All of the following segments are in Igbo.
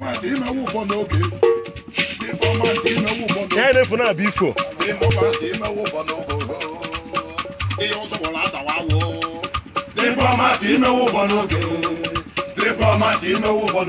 yẹn ní fún náà bí fò. Diplomati imewu bọ n'oge. Diplomati imewu bọ n'oge. Diplomati imewu bọ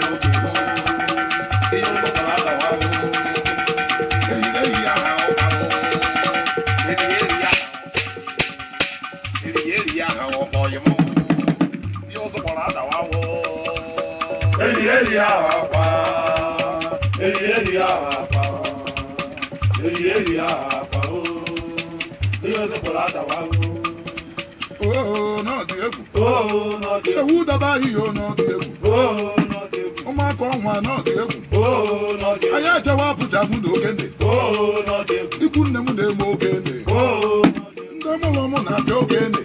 n'oge. àpá èrì èrì àpá èrì èrì àpá o bí o sì pọ̀ látàwá o. Oo náà di egwu. Oo náà di egwu. Sewu daba iyo náà di egwu. Oo náà di egwu. Ụmụaka ọnwa náà dị egwu. Oo náà dị egwu. Anyị ejewa apụja mụ na okene. Ikwu nne m na-eme okene. Ndị mụrụ m na-abịa okene.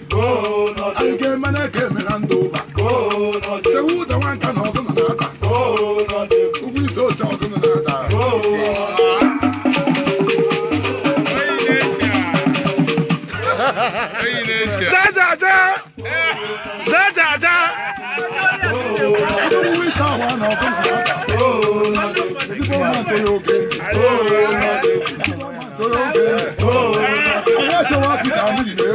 Oh, Oh Oh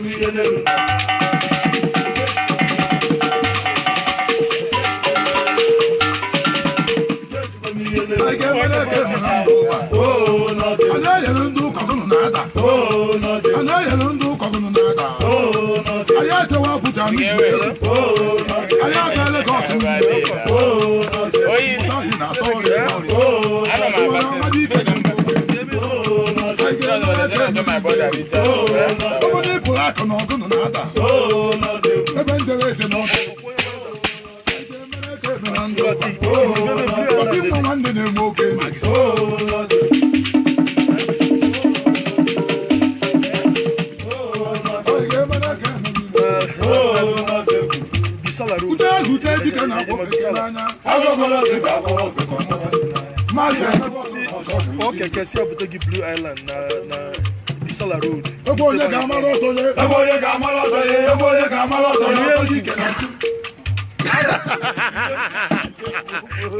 milioneiro. Oh, not it. I know you don't do coconut nada. Oh, not it. I know you don't do coconut nada. Oh, not it. I had to walk with your Oh, ọ kẹkẹ sí abutegi blue island na na bisala road. ebo onye ka amara ọtọ ye. ebo onye ka amara ọtọ ye. ebo onye ka amara ọtọ ye. onye oji kẹlẹ.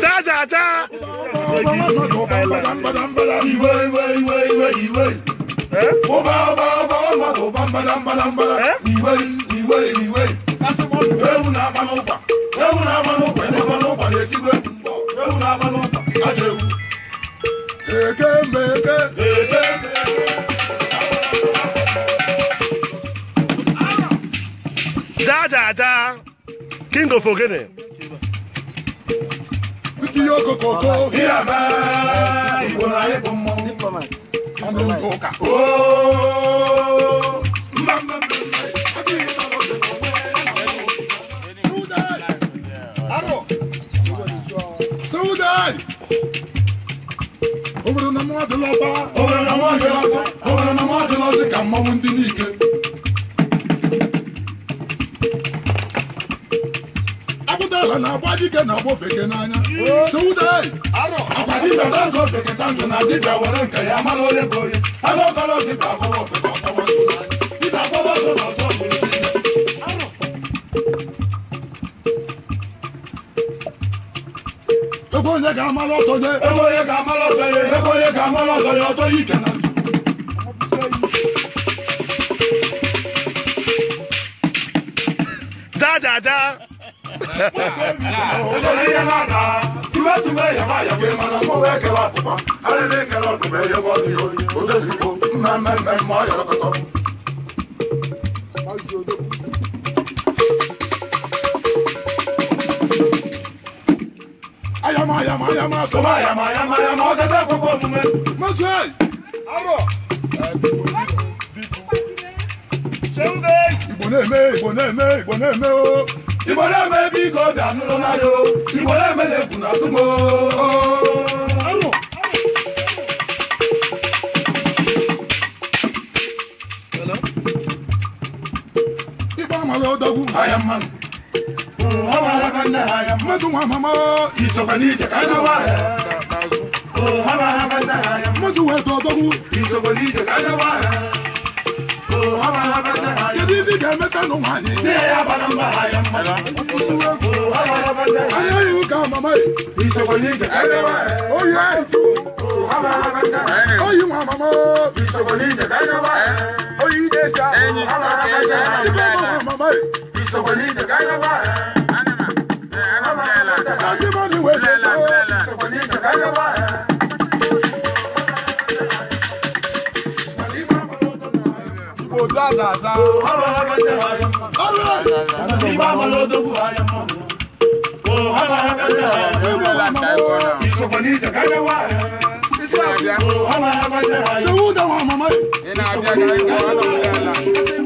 ta ta ta. iwe iwe iwe iwe iwe. ọba ọba ọba ọba ọba mbada mbada mbada. iwe iwe iwe. ewu na-agba n'ụkwa ewu na-agba n'ụkwa n'ụkwa na-etigwe ewu na-agba aja ewu eke mbe eke eke jajaja king of ogene tinye okokoko ihe igbo na anyị bụ ndị ụka mwadilọba owere na mwadilọzi owere na mwadilọzi ka mmanwụ ndị n'ike apụtala na agba dike na agba ofeke n'anya sewude arọ akwa dibia tanzụ ofeke tanzụ na dibia were nke ya mara onye bụ onye agakọrọ dibia akọrọ ofeke ọkọwa ntụ n'anya dibia akọwa ntụ n'ọzọ ebonye ka amala ọtọ je ebonye ka amala ọtọ je ebonye ka amala ọtọ je ọtọ yi kana dáadáa. olórí yẹn náà dá tìbẹ́ tìbẹ́ yàrá yàgò yẹn máa mọ wẹ́ kẹwàá tìpa alẹ́ lé kẹrọ tìbẹ́ yẹ bọ́ ní orí o tẹ̀sí ko mẹ́mẹ́mẹ́ mọ́ yọrọ kọtọ. yama yama yama sọba yama yama yama ọtẹ tẹ gbogbo mume. mọ̀sù ẹ̀ arọ. sẹ́wọ́n bẹ́ẹ̀. mẹ́ ìbò mẹ́ ìbò mẹ́ o. ìbò mẹ́ bí kò dànù lọ́la yo ìbò mẹ́ lè kùnà tún mọ́. arọ. ìbá hawa banda haya mazu mama mo iso bani je kana waya oh hawa banda haya mazu we to dogu iso bani je kana waya oh hawa banda haya yadi bi ga mesa no mani se ya balamba haya oh hawa banda haya ayu ka mama iso bani je kana waya oh yeah oh hawa banda haya oh you mama mo iso bani je kana waya oh you desa oh hawa banda haya mama mo iso bani je kana waya dàdà. ọ̀rọ̀ akẹ́kẹ́ wa yẹ mọ́. ìgbà I'm ló dógùn wa yẹ mọ́. ọ̀rọ̀ akẹ́kẹ́ wa yẹ mọ́. ìsọ̀kọ̀ ní ìjàkáyé wa I'm ọ̀rọ̀ akẹ́kẹ́ wa yẹ mọ́. ṣé wúdà wọn mọ̀ mọ́ yìí. ìnà àbíyá kan yẹ wọ́n lọ́wọ́ yàrá.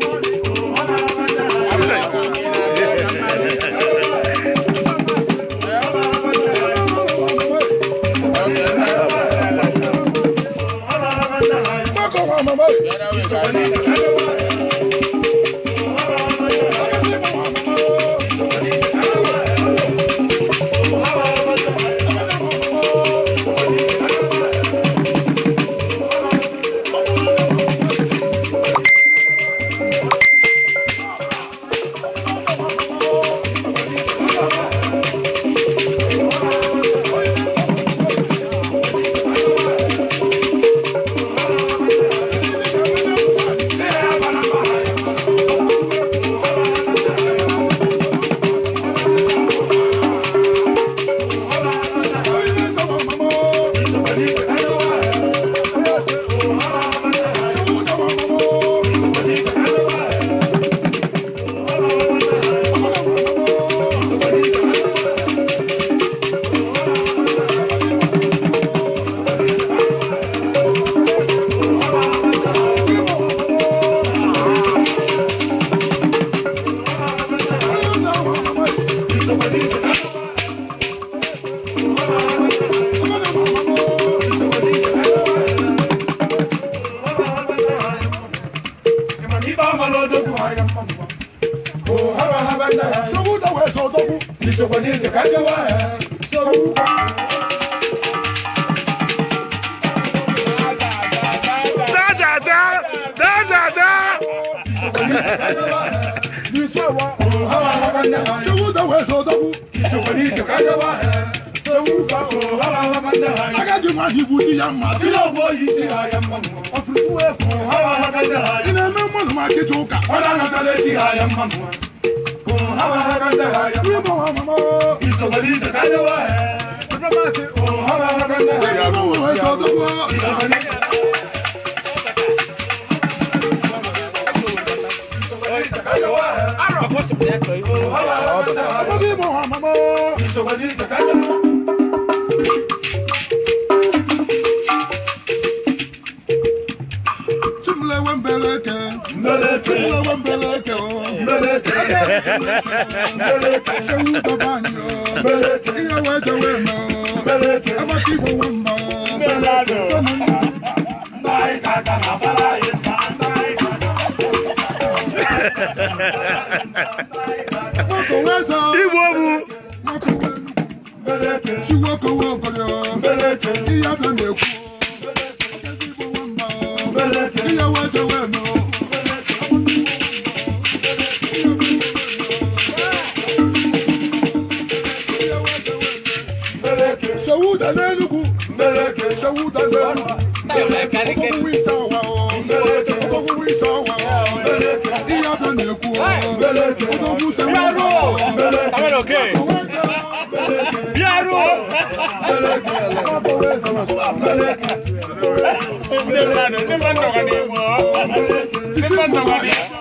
Adi ma hibu di ya ma. Sila bo yi si ha ya ma mu. Afiriku hawa haka da ha. Ina me mo ma ke joka. Wala na tale si ha ya ma hawa haka da ha mo wa mama. Iso bali ta ka ya wa hawa haka da ha mo wa so do bo. Iso bali. Arọ. Ọmọdé mọ̀ ọ́ mọ́mọ́. Ìṣòwò mbeleke mbeleke mbeleke mbeleke mbeleke sewu babanyo mbeleke iye weje wemo mbeleke abatibo wemba mbelado ndai kaka kabala yenda ndai kaka mokoweza ibobu mokowenu mbeleke chiwokowo obolyo mbeleke iyabe na-ekwu kú o. o tó kú sẹ́wọ́n. bíárù àwọn òkè. bíárù. Thank you.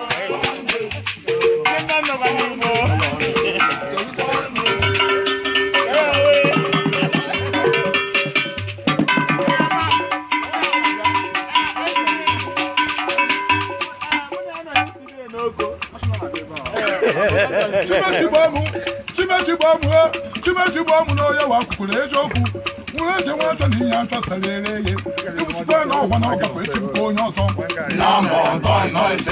na-eji eziokwu nwere eze nwa achọ na ihe achọ sara ere eghe ịbụsikwa na ọgwa na ọgakwa echebụkwa onye ọzọ ebe eze na-eje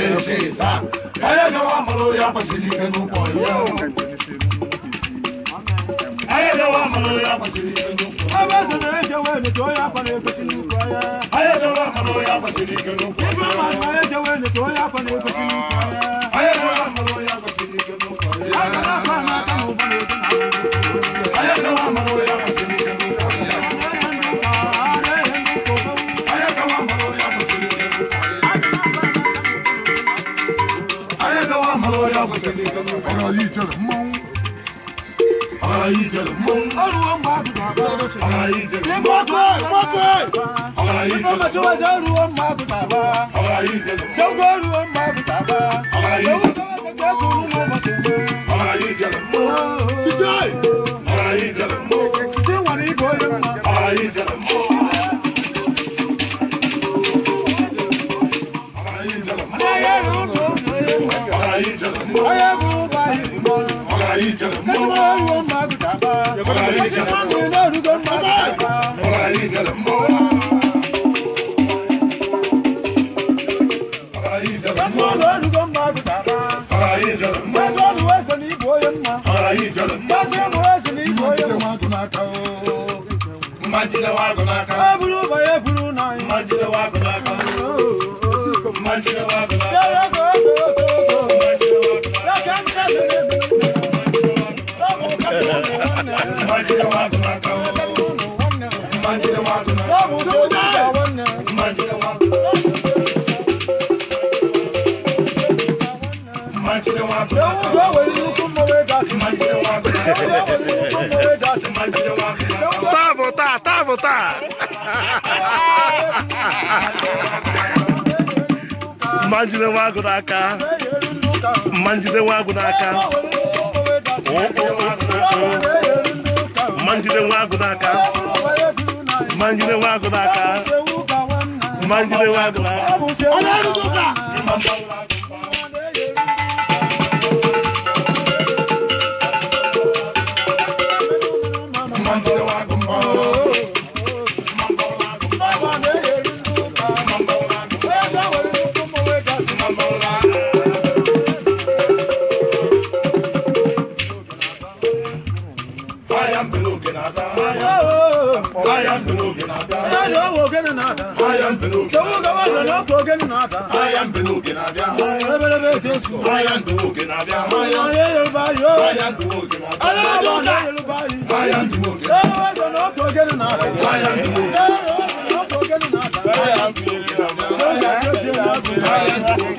wee nete onye akwa na-ekwesị n'ukwu ahịa ibe mmadụ na-eje onye akwa na-ekwesị n'ukwu ahịa na ọ̀rọ̀ yìí jẹ̀rẹ̀ mọ́ ọ̀rọ̀ yìí jẹ̀rẹ̀ mọ́ ọ̀rọ̀ yìí jẹ̀rẹ̀ mọ́ mọ́tò ọ̀rọ̀ yìí jẹ̀rẹ̀ mọ́ sọ́wọ́sọ́ ọ̀rọ̀ mọ́ àgùtà bá ọ̀rọ̀ yìí jẹ̀rẹ̀ mọ́ ọ̀rọ̀ mọ́ bá ọ̀rọ̀ yìí ọ̀rọ̀ yìí jẹ̀rẹ̀ mọ́ ọ̀rọ̀ yìí jẹ̀rẹ̀ mọ́ ọ̀rọ̀ yìí jẹ̀rẹ̀ mọ́ ọ̀rọ̀ yìí jẹ̀rẹ̀ mọ́ ọ̀rọ̀ ọ̀rọ̀ yìí jẹ̀rẹ̀ mọ́ Oya bumba ibo. Ola ije mo. Kasima wo maguta ba. Ola ije mo. Kasima wo rugo maguta ba. Ola ije mo. Kasima wo rugo maguta ba. Ola ije mo. Kasima wo ese ni boye ma. Ola ije mo. Kasima wo ese ni boye ma. wa gunaka o. wa gunaka. Eburu wa gunaka. Manjide jide nwa agụ n'aka ma njide nwa agụ n'aka ma njide nwa agụ n'aka Manjide njide nwa agụ n'aka ma njide n'aka owo ogene na-ada sowu gaba I am ogene na-ada ebelebe jesu onye yoruba I am alaba na yoruba yi ewe sọ n'ọkụ ogene na-ada ewe sọ n'ọkụ ogene na-ada.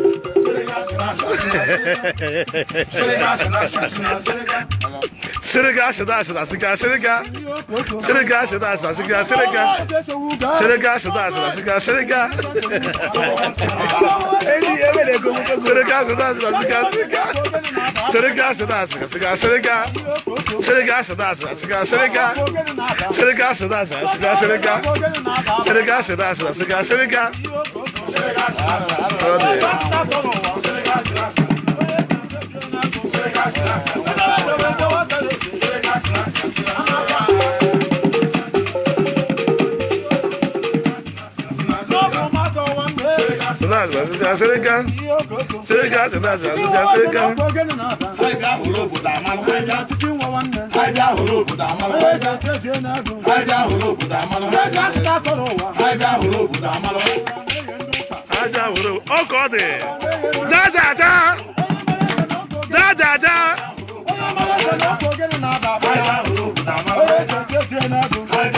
Sırıga şıda şıda sıga sırıga Sırıga şıda şıda sıga sırıga Sırıga şıda şıda sıga sırıga Sırıga şıda şıda sıga sırıga Sırıga şıda şıda sıga sırıga Sırıga şıda şıda sıga sırıga Sırıga şıda şıda sıga sırıga Sırıga şıda şıda sıga sırıga Hadi Azụja Sereka. Sereka asị na azụja Azụja Sereka. Anyị bịa hụrụ obodo amalụ. Anyị bịa hụrụ obodo amalụ. Anyị bịa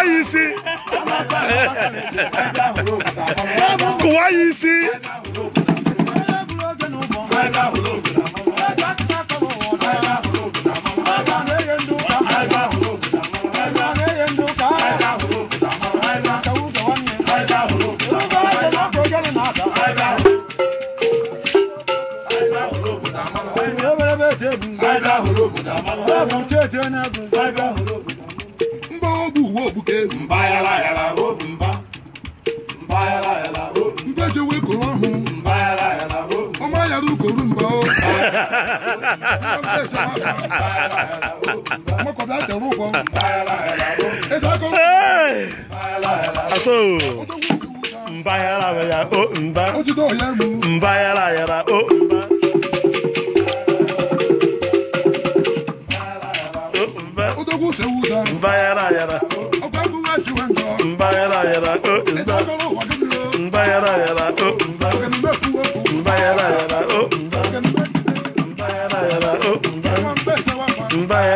wá yìí sí kò wá yìí sí. bye ogbuke mba yala yala robu mba mba la yala robu mbeje we koro ọhụ mba yala yala robu ọma yara ukoru mba o ọmọkọ̀dá àtẹ̀rù kọ mba yala la robu ẹ̀dá kọ́ mba yala yala robu mba la yala o mba mba yala la o mba.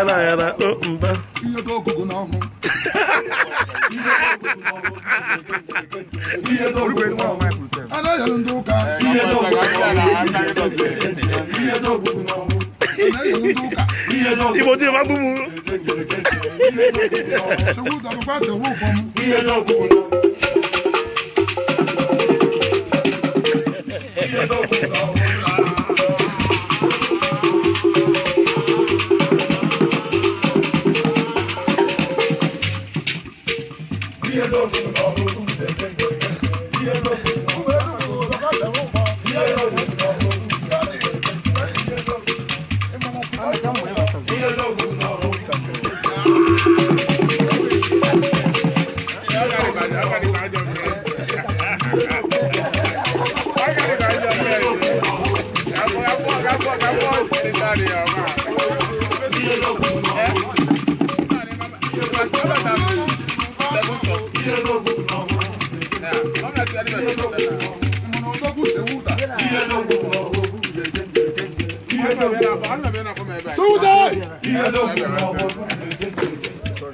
yara yara o oh, mba anaghịrị ndị ụka igbo dị ma gbugbu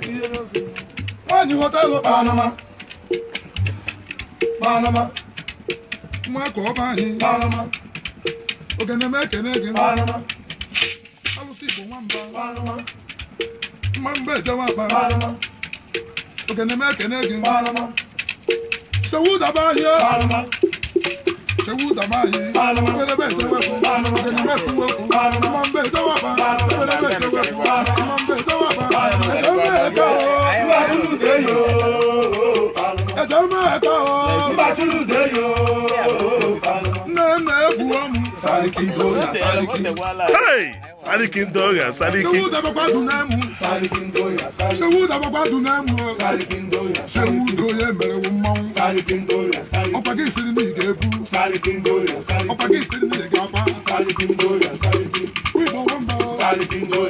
nwaanyị ghọta ụlọ kpaa anụma kpaa anụma nwa Panama, ọba anyị kpaa anụma ogene m ekene gị kpaa anụma alụsị igbo nwamba kpaa anụma mma Panama, ejewa akpa kpaa anụma ogene m ekene gị kpaa anụma sewu daba ahịa kpaa anụma sewu daba ahịa ebelebe ejewepụ ogene m ekwuwepụ mma mba ejewepụ ebelebe ejewepụ mma mba ejewepụ ẹjọ́ máa kọ́ ọ́ bá túlù dé yó. ẹjọ́ máa kọ́ ọ́ bá túlù dé yó. nẹ́ẹ̀mẹ́ bu ọmú. Sariki ń dọ́gà Sariki. Sariki ń dọ́gà Sariki. Ṣé wú dàbọ̀ gbádùn náà mú? Sariki ń dọ́gà Sariki. Ṣé wú dàbọ̀ gbádùn náà mú? Sariki ń dọ́gà Sariki. Ṣé wú dòye mẹ̀rẹ̀ wò mọ́? Sariki ń dọ́gà Sariki. Ọ̀pá kì í ṣe ní mi ìgẹ̀ bú. Sariki ń dọ́gà Sariki. Ọ̀pá kì í ṣe ní mi ìgẹ̀ apá. Sariki ń dọ́gà Sariki. Wíwọ̀ wọ́n bọ̀. Sariki ń dọ́gà.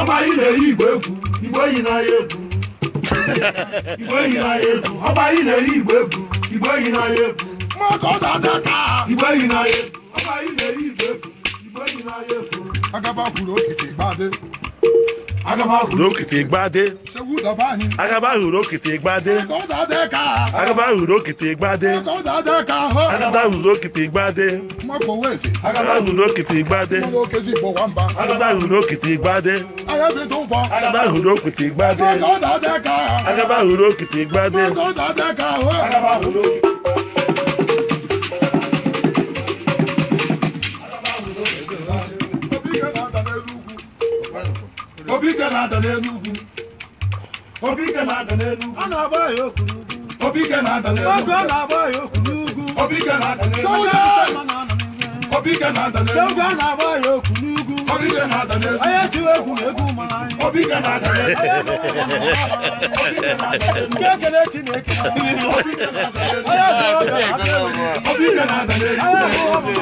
ọba yìí na-eyi igbo egwu igbo eyi n'ahịa egwu igbo eyi n'ahịa egwu ọba yìí na-eyi igbo egwu igbo eyi n'ahịa egwu mọtò dada ka igbo eyi n'ahịa egwu ọba yìí na-eyi igbo egwu igbo eyi n'ahịa egwu agaba kwuru okete gbade agaba kwuru okete gbade agaba huru okite gbade agaba huru okite gbade agaba huru okite gbade agaba huru okite gbade agaba huru okite gbade agaba huru okite gbade agaba huru okite gbade agaba huru okite. obi gara ada n'elu ugwu Obike na ọ na-agba ya n'ugwu na n'elu na-agba ya okwu n'ugwu na n'elu na na n'elu egwu na egwu mara anyị na n'elu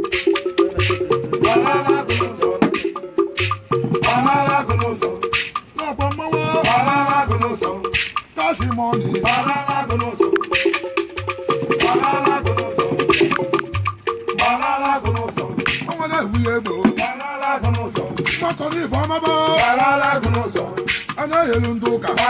fọmọbọ. wàhálà lágùnù sọ. a náà yẹlu ń tó kà.